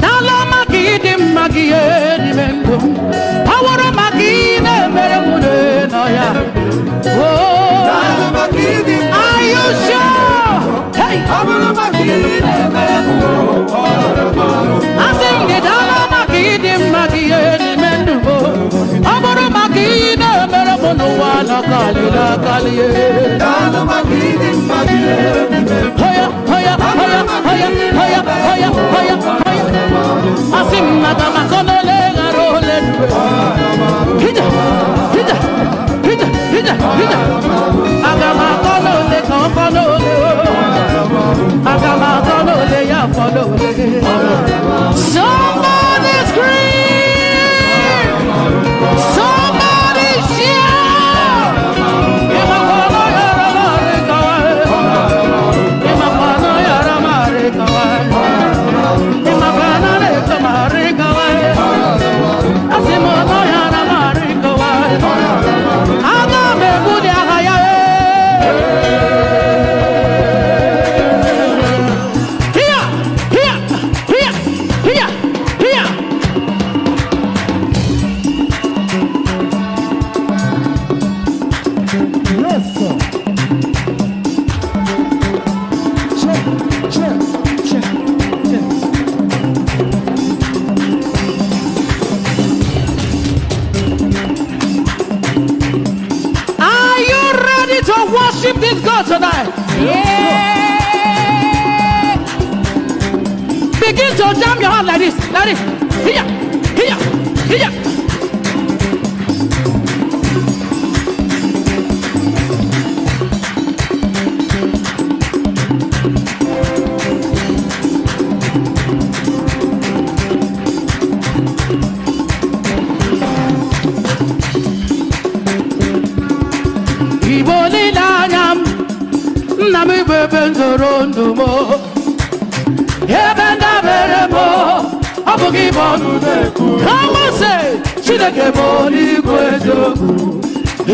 n'ala ọma ka ị dị mma gị n'ime ndụ m ọwụrụ maka ị na-emere m n'ọnọ ya ayụsịọ asị m gị dala ọma ka ị dị mma gị n'ime ndụ m ọ bụrụ maka ị na-emere m n'ụwa nọ kalịla kalịa asimnata makonele ngarole hija hija hija hija hija agama konole kan konole agama konole Somebody worship this God tonight. Yeah. Begin to jam your hand like this, like this. Here, here, here. gị bọnụ na-ekwu amase chineke bụ n'igwe eziokwu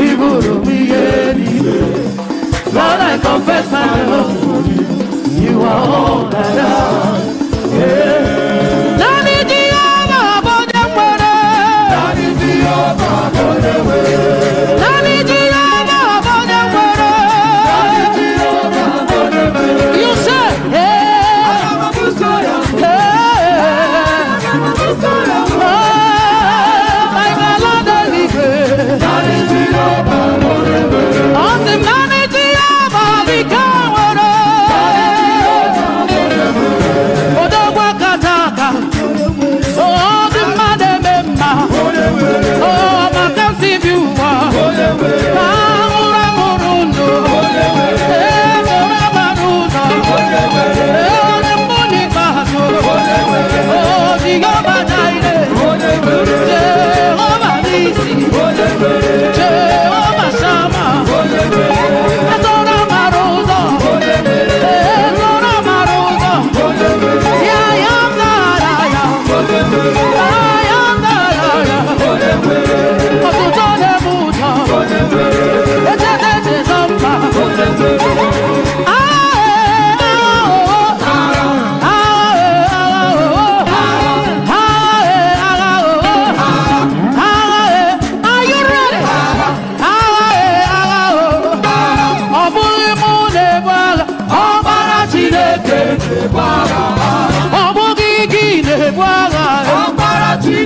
ibụrụ m ihe niile Lord, I confess my love for you. You are all that I am.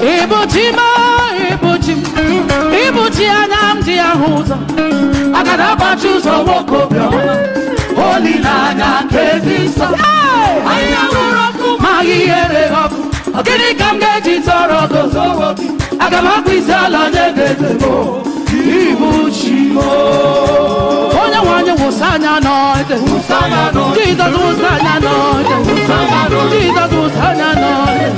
Ibutima, Ibutim, Ibutia Namdi Ahuza, Agadaba Chuzo Woko Holy Nana Kevisa, Ayamuroku, Magiere Oku, Agini Kamgeji Toro Gozo, Agamakwizala Negezebo, Ibuchimo. Onye nwanyị wụsa anya n'ọjị. Jizọs wụsa anya n'ọjị. Jizọs wụsa anya n'ọjị.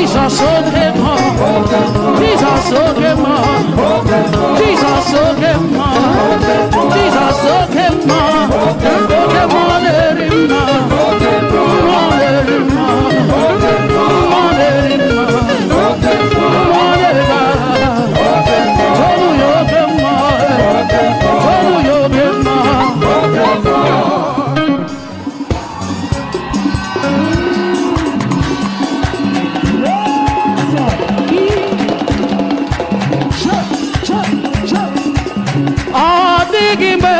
Jesus so great, Jesus so great, Jesus so Biggie Bird.